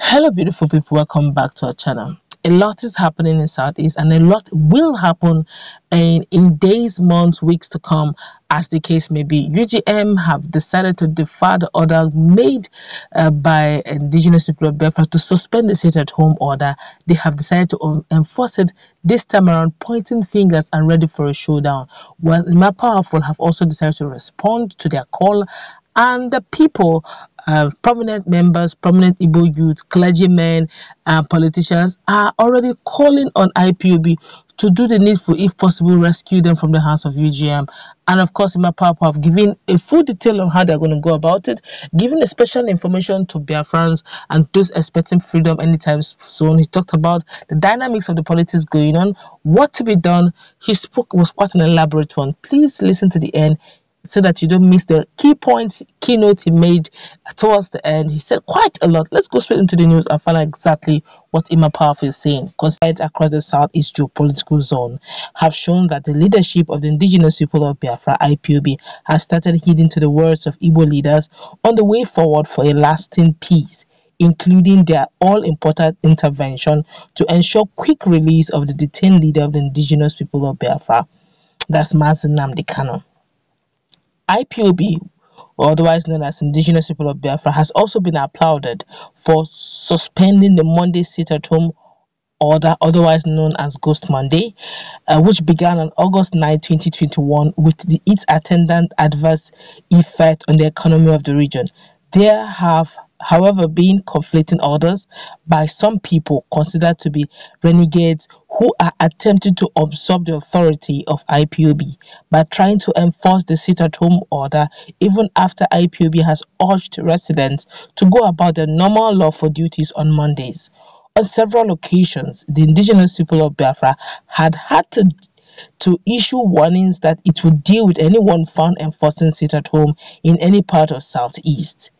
hello beautiful people welcome back to our channel a lot is happening in southeast and a lot will happen in in days months weeks to come as the case may be ugm have decided to defer the order made uh, by indigenous people of biafra to suspend the sit at home order they have decided to enforce it this time around pointing fingers and ready for a showdown well powerful have also decided to respond to their call and the people uh, prominent members, prominent Igbo youth, clergymen, uh, politicians are already calling on IPOB to do the needful, if possible, rescue them from the hands of UGM. And of course, my Papa have given a full detail on how they're going to go about it, giving a special information to their friends and those expecting freedom anytime soon. He talked about the dynamics of the politics going on, what to be done. He spoke was quite an elaborate one. Please listen to the end so that you don't miss the key points, keynote he made towards the end. He said quite a lot. Let's go straight into the news and find out exactly what Ima Powerful is saying. Concerns across the Southeast geopolitical zone have shown that the leadership of the indigenous people of Biafra, IPOB, has started heeding to the words of Igbo leaders on the way forward for a lasting peace including their all-important intervention to ensure quick release of the detained leader of the indigenous people of Biafra, that's Mazen Namdekano. IPOB, or otherwise known as Indigenous People of Biafra, has also been applauded for suspending the Monday sit at home order, otherwise known as Ghost Monday, uh, which began on August 9, 2021, with the, its attendant adverse effect on the economy of the region. There have, however, been conflicting orders by some people considered to be renegades who are attempting to absorb the authority of IPOB by trying to enforce the sit-at-home order even after IPOB has urged residents to go about their normal lawful duties on Mondays. On several occasions, the indigenous people of Biafra had had to to issue warnings that it would deal with anyone found enforcing sit at home in any part of southeast.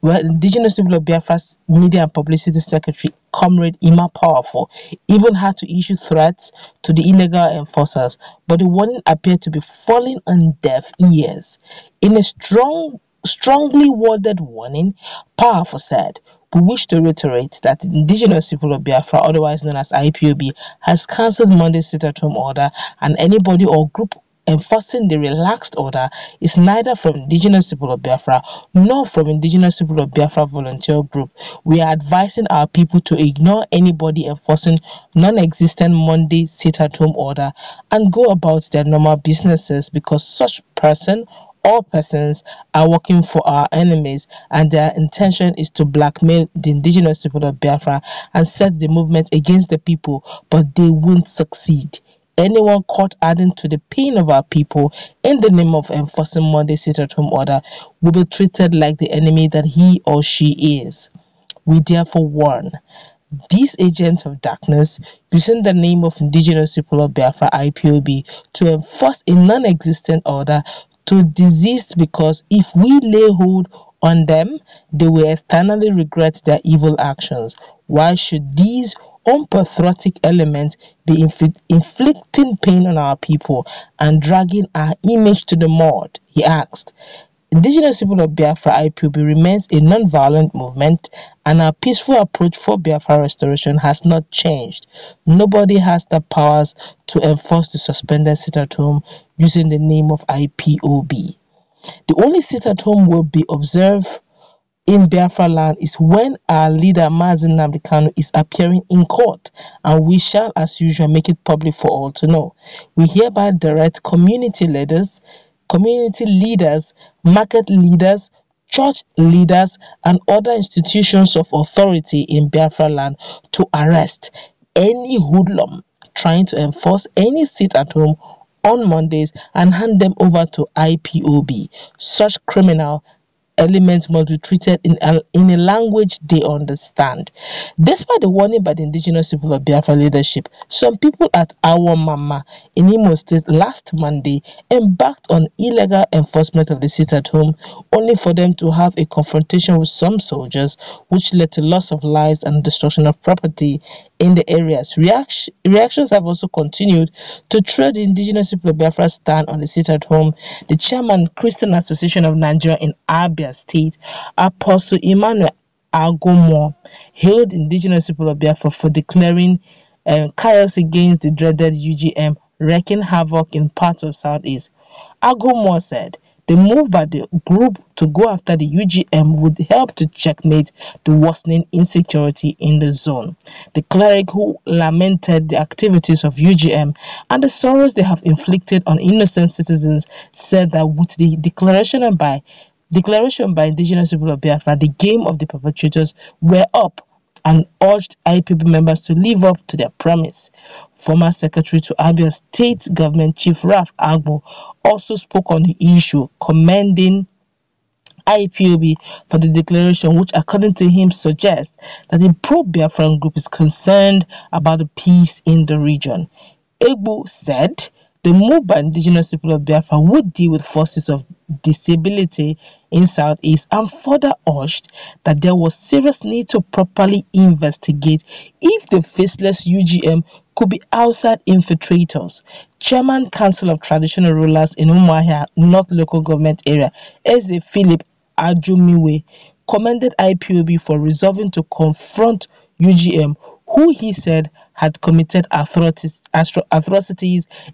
Well, indigenous people of Biafra's media and publicity secretary, Comrade Ima Powerful, even had to issue threats to the illegal enforcers, but the warning appeared to be falling on deaf ears. In a strong, strongly worded warning, Powerful said, we wish to reiterate that the Indigenous People of Biafra, otherwise known as IPOB, has cancelled Monday's sit-at-home order and anybody or group enforcing the relaxed order is neither from indigenous people of Biafra nor from indigenous people of Biafra volunteer group. We are advising our people to ignore anybody enforcing non-existent Monday sit-at-home order and go about their normal businesses because such person all persons are working for our enemies and their intention is to blackmail the indigenous people of Biafra and set the movement against the people, but they won't succeed anyone caught adding to the pain of our people in the name of enforcing Monday's sit at home order will be treated like the enemy that he or she is. We therefore warn these agents of darkness using the name of indigenous people of Biafra IPOB to enforce a non-existent order to desist because if we lay hold on them, they will eternally regret their evil actions. Why should these unpatriotic element be inflicting pain on our people and dragging our image to the mud? He asked. Indigenous people of Biafra IPOB remains a non-violent movement and our peaceful approach for Biafra restoration has not changed. Nobody has the powers to enforce the suspended sit at home using the name of IPOB. The only sit at home will be observed in Biafra land is when our leader Mazin Namdekano is appearing in court and we shall as usual make it public for all to know. We hereby direct community leaders, community leaders, market leaders, church leaders and other institutions of authority in Biafra land to arrest any hoodlum trying to enforce any seat at home on Mondays and hand them over to IPOB. Such criminal elements must be treated in a, in a language they understand. Despite the warning by the indigenous people of Biafra leadership, some people at Awo Mama in Imo State last Monday embarked on illegal enforcement of the sit at home, only for them to have a confrontation with some soldiers, which led to loss of lives and destruction of property in the areas. reactions have also continued to trail the indigenous people of Biafra stand on the sit at home. The chairman, Christian Association of Nigeria in Abia, Abia State, Apostle Emmanuel Agomo hailed indigenous people of Biafra for declaring um, chaos against the dreaded UGM, wreaking havoc in parts of Southeast. Agomo said the move by the group to go after the UGM would help to checkmate the worsening insecurity in the zone. The cleric who lamented the activities of UGM and the sorrows they have inflicted on innocent citizens said that with the declaration by Declaration by indigenous people of Biafra, the game of the perpetrators, were up and urged IPB members to live up to their promise. Former Secretary to Abia State Government Chief Raf Agbo also spoke on the issue, commending IPOB for the declaration, which, according to him, suggests that the pro Biafran group is concerned about the peace in the region. Egbo said the move by indigenous people of Biafra would deal with forces of disability in Southeast and further urged that there was serious need to properly investigate if the faceless UGM could be outside infiltrators. Chairman Council of Traditional Rulers in Umuahia North Local Government Area, Eze Philip Ajumiwe, commended IPOB for resolving to confront UGM who he said had committed atrocities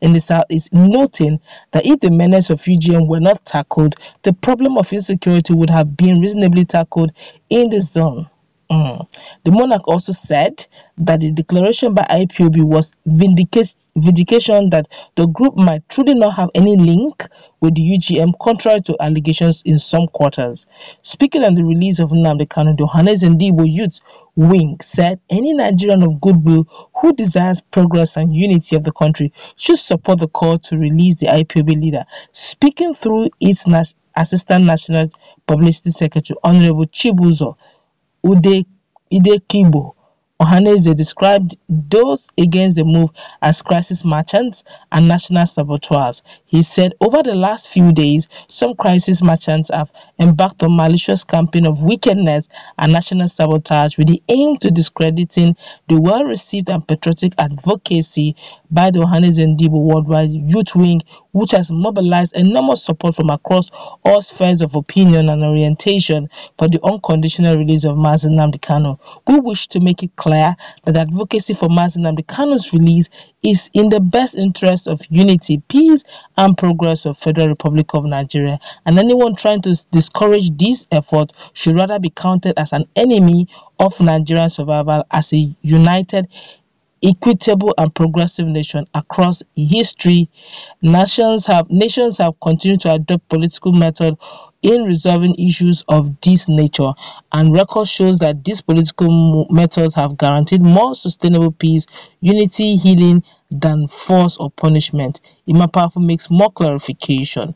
in the south is noting that if the menace of UGM were not tackled, the problem of insecurity would have been reasonably tackled in the zone. Mm. The monarch also said that the declaration by IPOB was vindication that the group might truly not have any link with the UGM, contrary to allegations in some quarters. Speaking on the release of Nnamdi Kanu, Johannes Debo Youth Wing said any Nigerian of goodwill who desires progress and unity of the country should support the call to release the IPOB leader. Speaking through its Assistant National Publicity Secretary, Honorable Chibuzo o de de Idekibo. Ohanaeze described those against the move as crisis merchants and national saboteurs. He said over the last few days, some crisis merchants have embarked on malicious campaign of wickedness and national sabotage with the aim to discrediting the well-received and patriotic advocacy by the Ohanaeze Ndibo Worldwide Youth Wing, which has mobilized enormous support from across all spheres of opinion and orientation for the unconditional release of Mazen Namdekano. We wish to make it clear declare that advocacy for and Amdekano's release is in the best interest of unity, peace, and progress of Federal Republic of Nigeria, and anyone trying to discourage this effort should rather be counted as an enemy of Nigerian survival as a united equitable and progressive nation across history, nations have nations have continued to adopt political method in resolving issues of this nature, and record shows that these political methods have guaranteed more sustainable peace, unity, healing than force or punishment. Imapafo makes more clarification.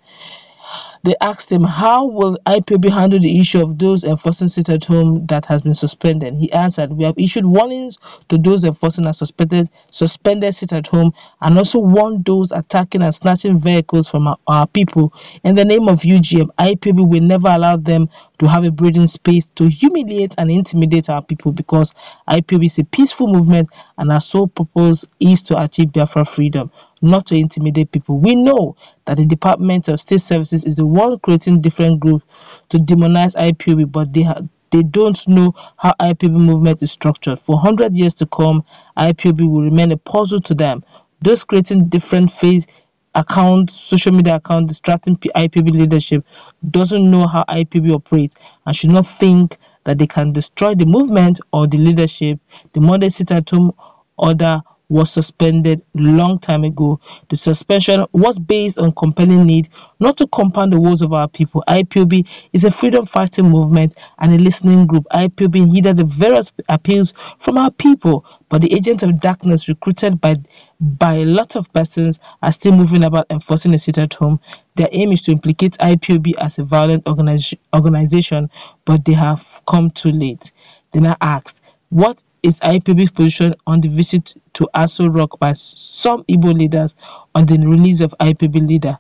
They asked him, how will IPOB handle the issue of those enforcing sit-at-home that has been suspended? He answered, we have issued warnings to those enforcing a suspended, suspended sit-at-home and also warned those attacking and snatching vehicles from our, our people. In the name of UGM, IPOB will never allow them to have a breathing space to humiliate and intimidate our people because IPOB is a peaceful movement and our sole purpose is to achieve Biafra freedom, not to intimidate people. We know that the Department of State Services is the while creating different groups to demonize IPOB, but they they don't know how IPB movement is structured. For 100 years to come, IPB will remain a puzzle to them. Those creating different phase accounts, social media accounts, distracting IPB leadership doesn't know how IPB operates and should not think that they can destroy the movement or the leadership the modern sit at home, order, was suspended long time ago. The suspension was based on compelling need not to compound the woes of our people. IPOB is a freedom-fighting movement and a listening group. IPOB heeded the various appeals from our people, but the agents of darkness recruited by by a lot of persons are still moving about enforcing a sit at home. Their aim is to implicate IPOB as a violent organiz- organization, but they have come too late. They now asked, what is IPB's position on the visit to Aso Rock by some Igbo leaders on the release of IPB leader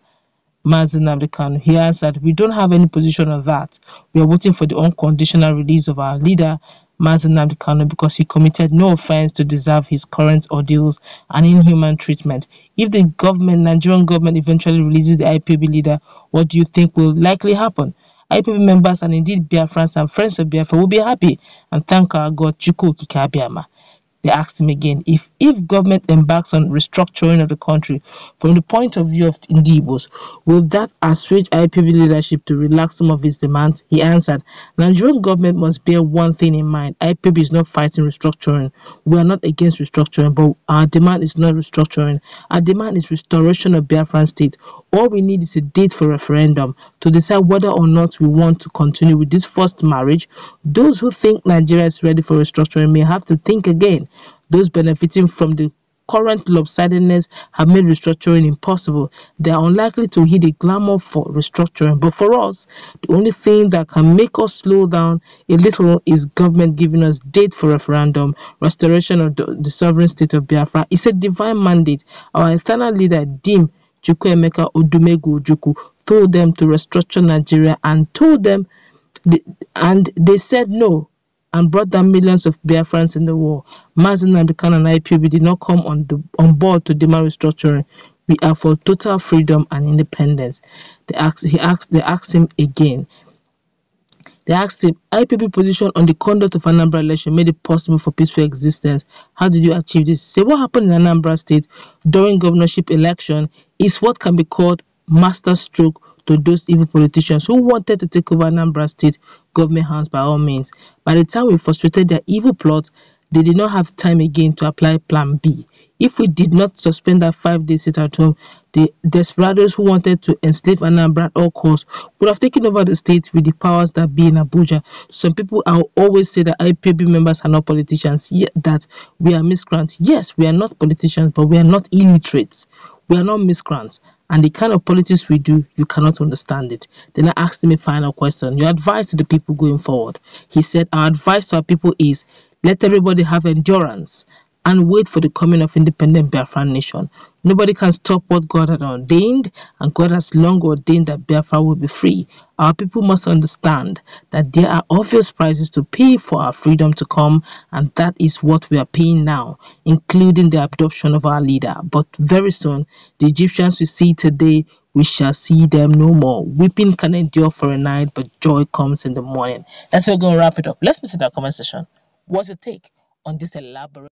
Mazen Amdekanu? He answered, We don't have any position on that. We are waiting for the unconditional release of our leader Mazen Amdekanu because he committed no offense to deserve his current ordeals and inhuman treatment. If the government, Nigerian government, eventually releases the IPB leader, what do you think will likely happen? IPB members and indeed Biafrans and friends of Biafra will be happy and thank our God Chuku Kikabiama. They asked him again if if government embarks on restructuring of the country from the point of view of Indibos, Ndibos, will that assuage IPB leadership to relax some of its demands? He answered, Nigerian government must bear one thing in mind. IPB is not fighting restructuring. We are not against restructuring, but our demand is not restructuring. Our demand is restoration of Biafran state what we need is a date for referendum to decide whether or not we want to continue with this forced marriage. Those who think Nigeria is ready for restructuring may have to think again. Those benefiting from the current lopsidedness have made restructuring impossible. They are unlikely to hit the glamour for restructuring. But for us, the only thing that can make us slow down a little is government giving us date for referendum, restoration of the, the sovereign state of Biafra. It's a divine mandate. Our eternal leader, Dim, Chukwuemeka Odumegwu, Ojukwu told them to restructure Nigeria and told them, the, and they said no and brought down millions of Biafrans in the war. Mazin and the and IPB did not come on, the, on board to demand restructuring. We are for total freedom and independence. They asked, he asked, they asked him again. They asked him, IPP position on the conduct of Anambra election made it possible for peaceful existence. How did you achieve this? Say, what happened in Anambra state during governorship election is what can be called masterstroke to those evil politicians who wanted to take over Anambra state government hands by all means. By the time we frustrated their evil plot, they did not have time again to apply Plan B. If we did not suspend that five day sit at home, the desperados who wanted to enslave Anambra at all costs would have taken over the state with the powers that be in Abuja. Some people always say that IPB members are not politicians, yet that we are miscreants. Yes, we are not politicians, but we are not illiterates. We are not miscreants. And the kind of politics we do, you cannot understand it. Then I asked him a final question. Your advice to the people going forward. He said, Our advice to our people is let everybody have endurance and wait for the coming of independent Biafran nation. Nobody can stop what God had ordained, and God has long ordained that Biafra will be free. Our people must understand that there are obvious prices to pay for our freedom to come, and that is what we are paying now, including the abduction of our leader. But very soon, the Egyptians we see today, we shall see them no more. Weeping can endure for a night, but joy comes in the morning. That's how we're going to wrap it up. Let's meet our the comment session. What's your take on this elaborate?